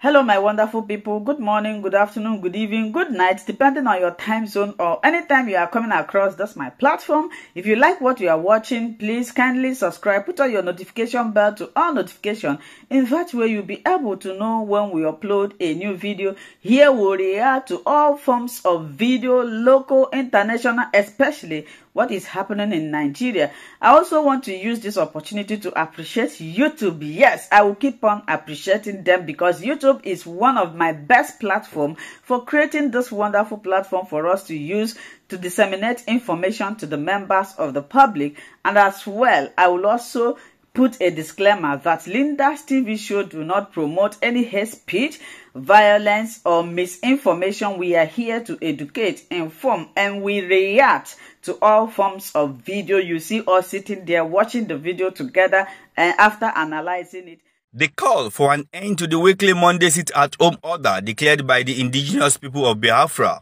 Hello, my wonderful people. Good morning, good afternoon, good evening, good night, depending on your time zone or anytime you are coming across. That's my platform. If you like what you are watching, please kindly subscribe. Put on your notification bell to all notification. In that way, you'll be able to know when we upload a new video. Here we react to all forms of video, local, international, especially what is happening in Nigeria. I also want to use this opportunity to appreciate YouTube. Yes, I will keep on appreciating them because YouTube YouTube is one of my best platform for creating this wonderful platform for us to use to disseminate information to the members of the public. And as well, I will also put a disclaimer that Linda's TV show do not promote any hate speech, violence, or misinformation. We are here to educate, inform, and we react to all forms of video. You see us sitting there watching the video together and after analyzing it. The call for an end to the weekly Monday sit-at-home order declared by the indigenous people of Biafra,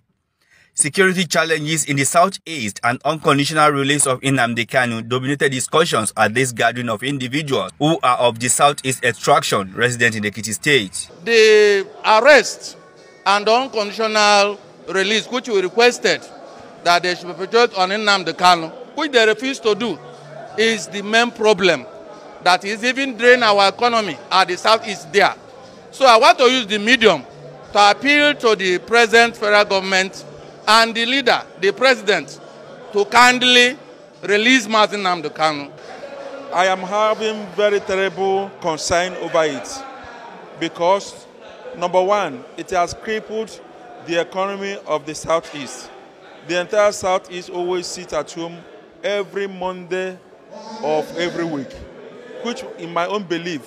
security challenges in the southeast, and unconditional release of Inamde Kanu dominated discussions at this gathering of individuals who are of the southeast extraction resident in the Kitty State. The arrest and unconditional release, which we requested that they should perpetrate on Inamde Kanu, which they refused to do, is the main problem that is even drain our economy at the southeast there. So I want to use the medium to appeal to the present federal government and the leader, the president, to kindly release Martin Namdekanu. I am having very terrible concern over it because, number one, it has crippled the economy of the Southeast. The entire Southeast always sits at home every Monday of every week. which in my own belief,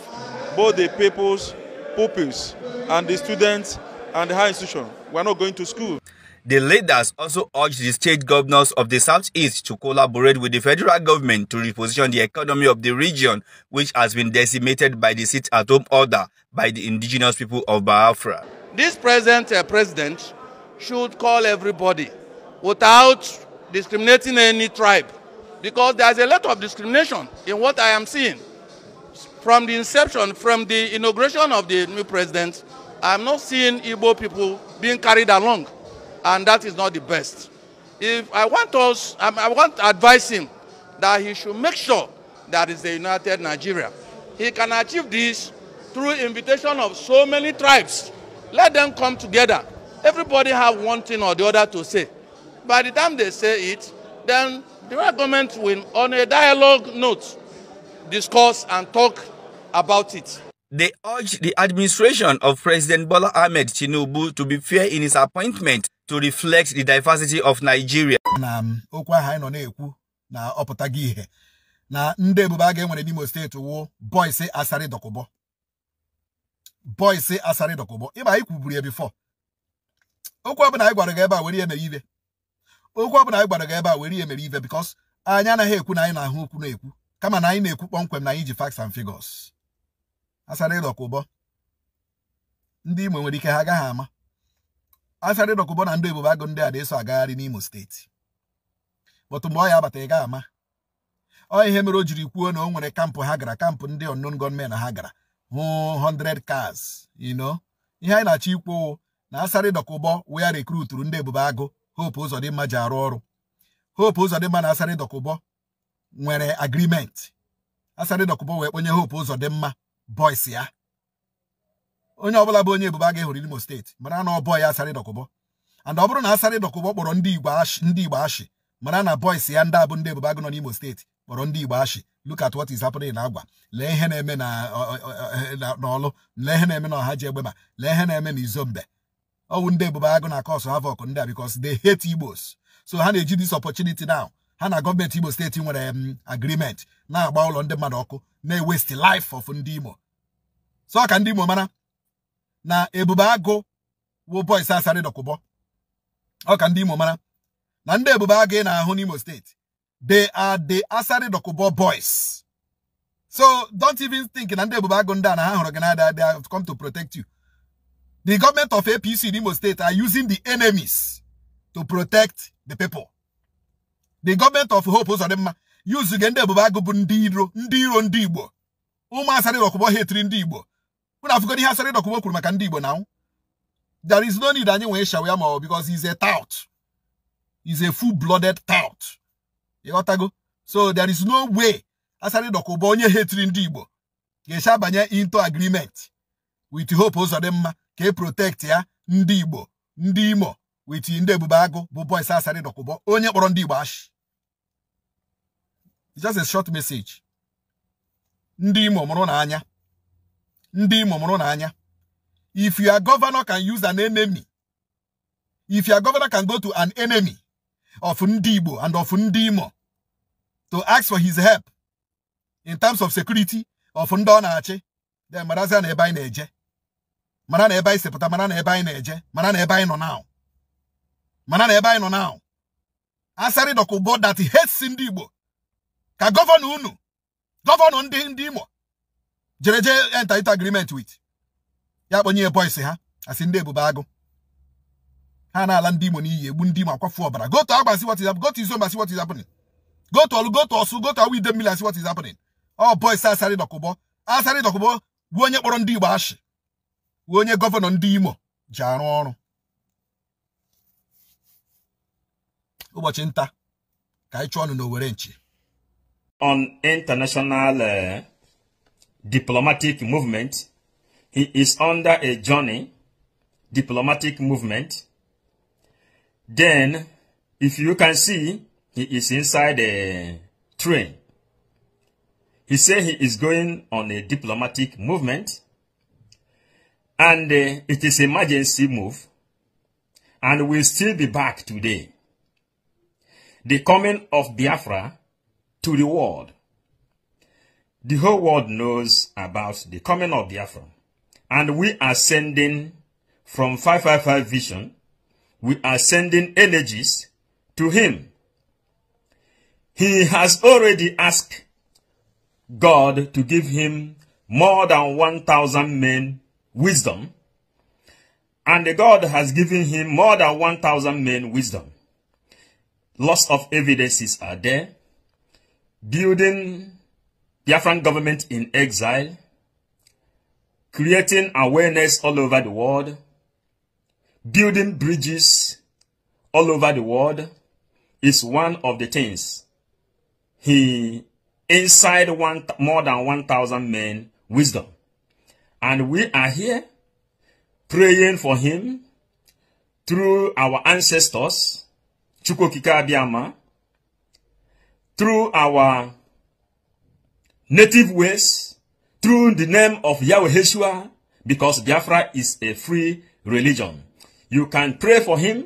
both the pupils, pupils and the students and the higher institution were not going to school. The leaders also urged the state governors of the southeast to collaborate with the federal government to reposition the economy of the region, which has been decimated by the sit-at-home order by the indigenous people of Biafra. This present uh, president should call everybody without discriminating any tribe because there's a lot of discrimination in what I am seeing. from the inception, from the inauguration of the new president, I'm not seeing Igbo people being carried along, and that is not the best. If I want us, I want to advise him that he should make sure that is the united Nigeria. He can achieve this through invitation of so many tribes. Let them come together. Everybody have one thing or the other to say. By the time they say it, then the government will, on a dialogue note, discuss and talk about it. They urge the administration of President Bola Ahmed Tinubu to be fair in his appointment to reflect the diversity of Nigeria. na um, okwu ahụ anyị nọ na-ekwu na ọpụtago ihe na ndị ebube a ga-enwere n'Imo steeti wụ bọịsị asarị dọkụbọ bọịsị asarị dọkụbọ ịba anyị kwuburu ya bifọ okwu ọbụla anyị gwara gị ebe a were ihe mere ive okwu ọbụla anyị gwara gị ebe a were ihe mere ive bikọs anyị anaghị ekwu na anyị na-ahụ okwu na-ekwu kama na anyị na-ekwu kpọmkwem na anyị ji facts and figures asara ịdọka ụbọ ndị Imo nwere ike ha agaghị ama asara ịdọka ụbọ na ndị ebube agụ ndị a na-eso agagharị n'Imo steeti bọtụ mgbe ọ ya abata ị gaghị ama ọ ihe mere o jiri kwuo na o nwere kampụ ha gara kampụ ndị ọnụn gọọmenti ha gara hụ 100 cars you ihe anyị na-achọ ikwu na asara ịdọka ụbọ wee rekruturu ndị ebube agụ Hope Uzodimma ji arụ ọrụ Hope Uzodimma na asara ụbọ nwere agrimenti asarị dọkụpọ wee kponye hope ụzọ dị mma boys ya onye ọbụla bụ onye ebubo a ga-ehụrụ Imo steeti mara na ọ bọọ ya asarị and ọ bụrụ na asarị kpọrọ ndị Igbo ashị mara na boys ya ndị abụ ndị ebubo agụ nọ n'Imo steeti kpọrọ ndị Igbo ashị look at what is na agwa lee ihe na-eme n'ọlụ lee ihe na-eme na ọha ji egbe ma lee ihe na-eme na izombe ọwụ ndị ebubo agụ na kọsụ havok ndị a bikos they hate Igbos so ha na-eji this opportunity ha na gọọmenti Imo steeti nwere um, agreement Now about on the mmadu may waste the life of ndị so I can Imo mara na ebube agụ wo boys asarị dọkụbọ ọ ka ndị Imo mara na ndị ebube agụ ị na-ahụ n'Imo they are the asarị dọkụbọ boys so don't even think na and ebube agụ ndị na ha they have come to protect you the government of APC in Imo state are using the enemies to protect the people the gọọmenti of hope Uzodimma yuzuge ndị ebube agụ bụ ndị iro ndị iro ndị igbo ụmụ asarị dọkụbọ hetiri ndị igbo ụnụ ihe asarị dọkụbọ kwuru maka ndị igbo na there is no need anyị nwee shaw ya ma ọ because is a tout is a full blooded tout ịghọtago so there is no way asarị dọkụbọ onye hetiri ndị igbo ga-esi abanye into agreement with hope mma ka e protect ya ndị igbo ndị imo wee ndị ebube agụ bụ Boyce Asari Dokubo onye kpọrọ ndị Igbo ashị just a short message ndị Imo mụrụ n'anya ndị Imo mụrụ n'anya if your governor can use an enemy if your governor can go to an enemy of ndị Igbo and of ndị Imo to ask for his help in terms of security of ndị ọ na-achị then marazia na ebe anyị na-eje mara na ebe anyị sipụta mara na ebe anyị na-eje mara na ebe anyị nọ now mana na ebe anyị nọ na asarị dọkụbo that hates ndị Igbo ka gọvanọ unu gọvanọ ndị ndị Imo jere jee enta into agreement wit ya kpọnye ya boys ha asị ndị ebube agụ ha na-ala ndị Imo n'iyi egbu ndị Imo akwafu ọbara goto Agba see what is happening go to Izomba see what is happening goto to Olu goto to Osu go to Awi Idemili see is happening ọ boys asarị dọkụbo asarị dọkụbo bụ onye kpọrọ ndị Igbo ashị bụ onye gọvanọ ndị Imo ji arụ ọrụ ụbọchị nta ka anyị chụọ ọnụ n'owere nchi on international uh, diplomatic movement. He is under a journey, diplomatic movement. Then, if you can see, he is inside a train. He said he is going on a diplomatic movement. And uh, it is emergency move. And will still be back today the coming of Biafra to the world. The whole world knows about the coming of Biafra. And we are sending from 555 Vision, we are sending energies to him. He has already asked God to give him more than 1,000 men wisdom. And God has given him more than 1,000 men wisdom. Lots of evidences are there. Building Biafran government in exile. Creating awareness all over the world. Building bridges all over the world is one of the things he inside one more than 1000 men wisdom and we are here praying for him through our ancestors Chukwokika Abiyama, through our native ways, through the name of Yahweh Yeshua, because Biafra is a free religion. You can pray for him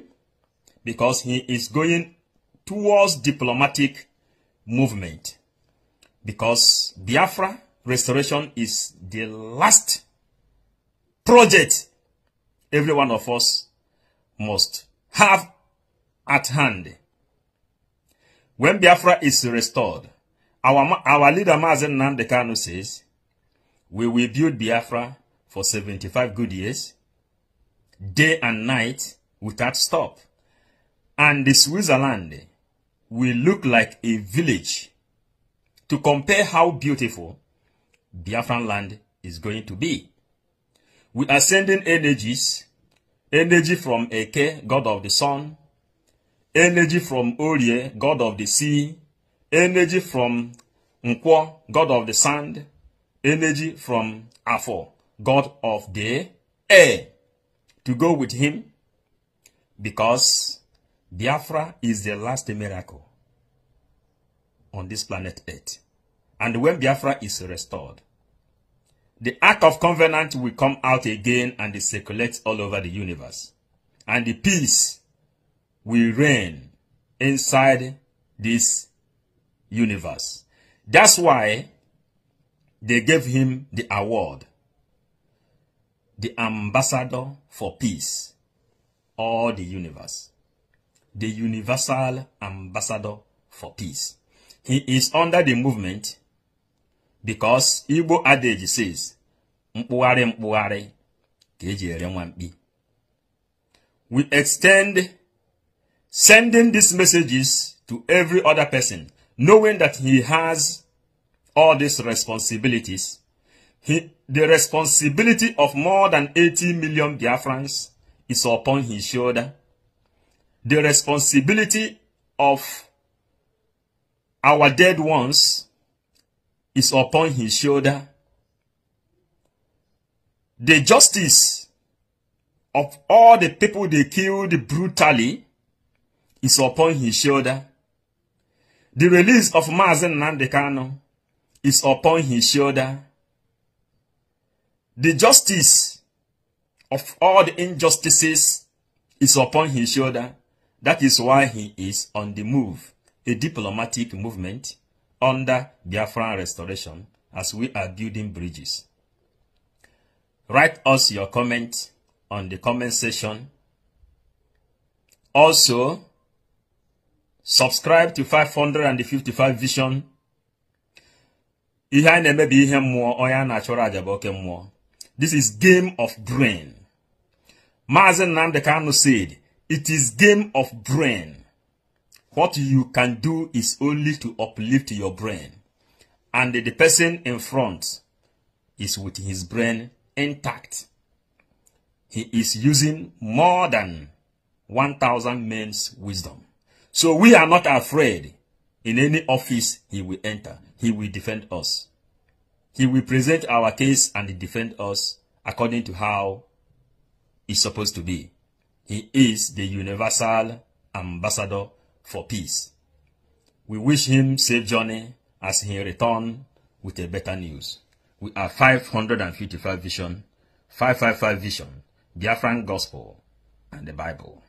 because he is going towards diplomatic movement. Because Biafra restoration is the last project every one of us must have at hand. When Biafra is restored, our, our leader Mazen Nandekano says, we will build Biafra for 75 good years, day and night without stop. And the Switzerland will look like a village to compare how beautiful Biafran land is going to be. We are sending energies, energy from Eke, God of the Sun, energy from Orie, god of the sea, energy from Nkwo, god of the sand, energy from Afo, god of the air, to go with him because Biafra is the last miracle on this planet Earth. And when Biafra is restored, the Ark of Covenant will come out again and circulate all over the universe. And the peace will reign inside this universe. That's why they gave him the award, the ambassador for peace, all the universe, the universal ambassador for peace. He is under the movement because Igbo adage says, mkpụgharị mkpụgharị We extend sending these messages to every other person, knowing that he has all these responsibilities. He, the responsibility of more than 80 million Biafrans is upon his shoulder. The responsibility of our dead ones is upon his shoulder. The justice of all the people they killed brutally is upon his shoulder. The release of Mazen Nandekano is upon his shoulder. The justice of all the injustices is upon his shoulder. That is why he is on the move, a diplomatic movement under Biafran restoration as we are building bridges. Write us your comment on the comment section. Also, subscribe to 555 vision ihe na na-eme ihe mmụọ onye a na-achọrọ aja bụ oke mmụọ this is game of brain Maazị Nnamdi Kanu said it is game of brain what you can do is only to uplift your brain and the person in front is with his brain intact he is using more than 1000 men's wisdom so we are not afraid. In any office he will enter, he will defend us. He will present our case and defend us according to how it's supposed to be. He is the universal ambassador for peace. We wish him safe journey as he return with a better news. We are 555 Vision, 555 Vision, Biafran Gospel, and the Bible.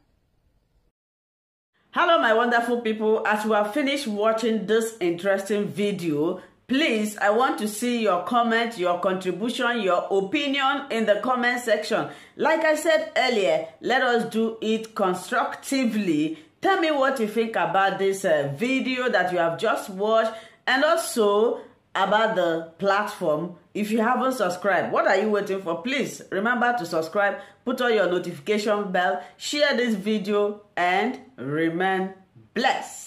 hello my wonderful people as you have finished watching this interesting video please i want to see your comment your contribution your opinion in the comment section like i said earlier let us do it constructively tell me what you think about this uh, video that you have just watched and also about the platform if you haven't subscribed what are you waiting for please remember to subscribe put on your notification bell share this video and remain blessed